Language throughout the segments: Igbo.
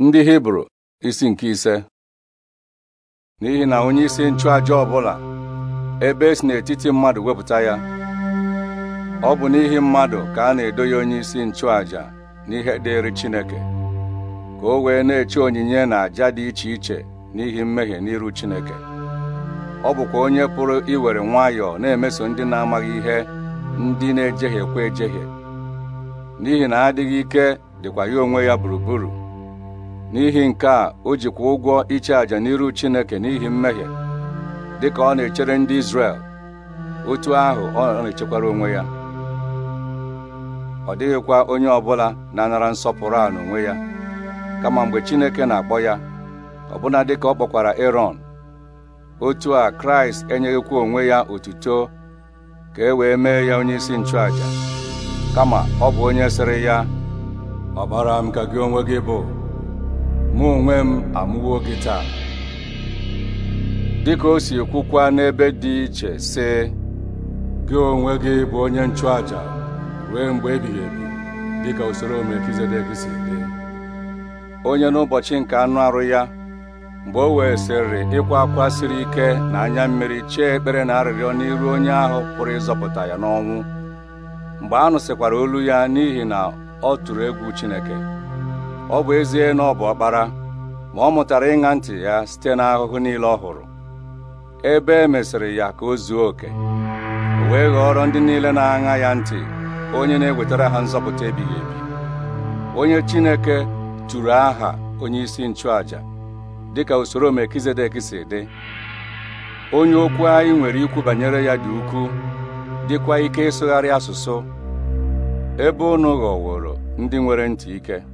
ndị hibru isi nke ise n'ihi na onye isi ọ ọbụla ebe esi n'etiti mmadụ wepụta ya ọ bụ n'ihi mmadụ ka a na-edo ya onye isi nchụaja n'ihe dịrị Chineke ka o wee na-eche onyinye na àja dị iche iche n'ihi mmehie n'iru Chineke ọ bụkwa onye pụrụ iwere nwayọọ na-emeso ndị na-amaghị ihe ndị na-ejehiekwa ejehie n'ihi na adịghị ike dịkwa ya onwe ya gburugburu n'ihi nke a o jikwa ụgwọ iche àjà n'iru Chineke n'ihi mmehie dịka ọ na-echere ndị Izrel otu ahụ ọ na-echekwara onwe ya ọ dịghịkwa onye ọbụla na-anara nsọpụrụ a n'onwe ya kama mgbe Chineke na-akpọ ya ọbụna dịka ọ kpọkwara Erọn otu a Kraịst enyeghịkwa onwe ya otuto ka e wee mee ya onye isi nchụàja kama ọ bụ onye sịrị ya ọbara m ka gị onwe gị bụ mụ onwe m amụwo gị taa dịka o si kwukwa n'ebe dị iche sị gị onwe gị bụ onye nchụaja ruo mgbe ebighị ebi dịka usoro Melkizedek si dị onye n'ụbọchị nke anụ arụ ya mgbe o wee sịrị ịkwa akwa siri ike na anya mmiri chee ekpere na arịrịọ n'iru onye ahụ pụrụ ịzọpụta ya n'ọnwụ mgbe a nụsịkwara olu ya n'ihi na ọ tụrụ egwu Chineke ọ bụ ezie na ọ bụ ọkpara ma ọ mụtara ịṅa ntị ya site n'ahụhụ niile ọ hụrụ ebe e mesịrị ya ka o zuo oke wee ghọrọ ndị niile na-aṅa ya ntị onye na-ewetara ha nzọpụta ebighị ebi onye Chineke tụrụ aha onye isi nchụaja dịka usoro Melkizedek si dị onye okwu anyị nwere ikwu banyere ya dị ukwuu dịkwa ike ịsụgharị asụsụ ebe unu ghọworo ndị nwere ntị ike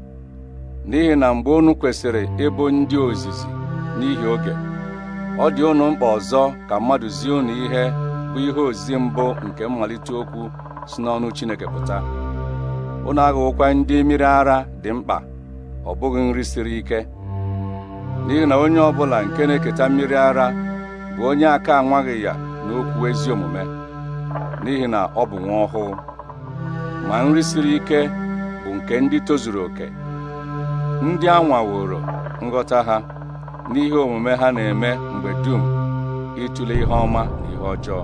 n'ihi na mgbe unu kwesịrị ịbụ ndị ozizi n'ihi oge ọ dị unu mkpa ọzọ ka mmadụ zie unu ihe bụ ihe ozizi mbụ nke mmalite okwu si n'ọnụ Chineke pụta unu aghụghọkwa ndị mmiri ara dị mkpa ọ bụghị nri siri ike n'ihi na onye ọ bụla nke na-eketa mmiri ara bụ onye aka anwaghị ya n'okwu ezi omume n'ihi na ọ bụ nwa ọhụụ ma nri siri ike bụ nke ndị tozuru oke ndị a nghọta ha n'ihe omume ha na-eme mgbe dum ịtụle ihe ọma na ihe ọjọọ